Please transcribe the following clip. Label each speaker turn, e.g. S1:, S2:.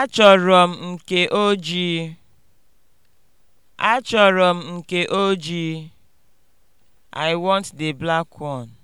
S1: Achọrọ m nke ojii. Achọrọ m nke ojii. I want the black one.